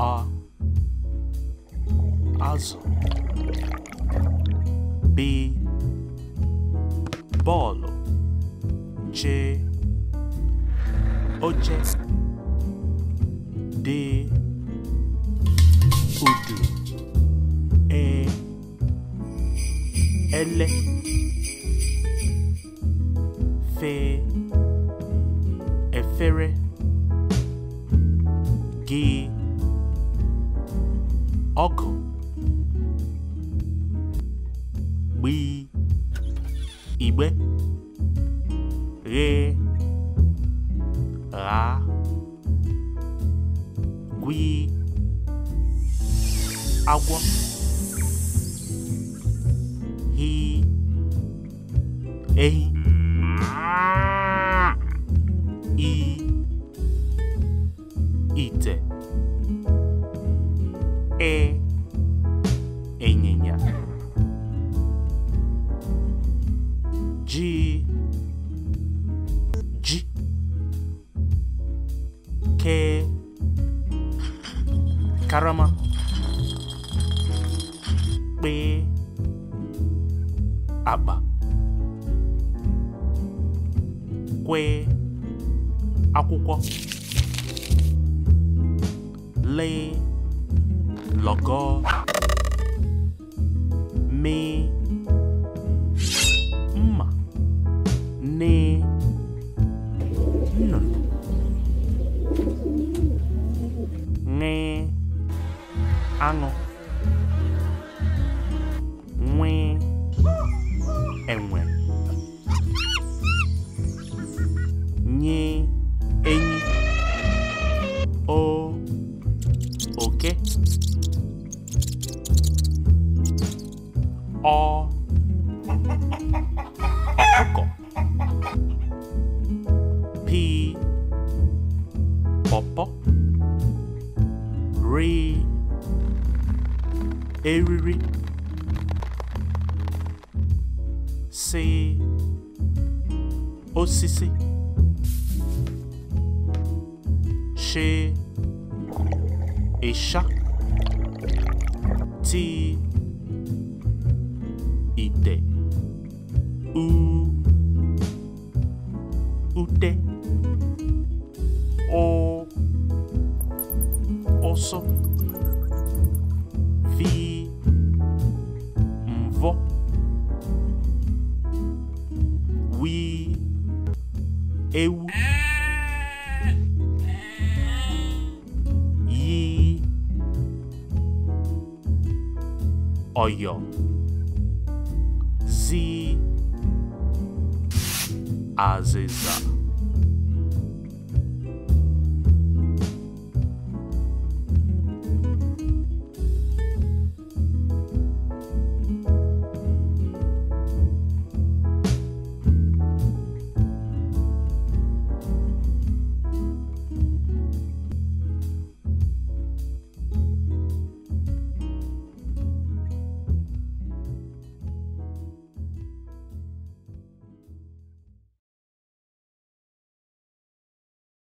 A Also. B Bolo J Oje D Udu E Ele Fe Efere Gee Oku. gbịị igbe Re. Ra. gwịị agwọ hii ehi ke karama pé àgbà kwe akwụkwọ le logo, me. aṅụ nwe enwe nye enyi o oke o, ọkụkọ p, pọpọ rii eriri si osisi ti ite u ute o ọsọ ewu yí ọ̀yọ̀ zí azịza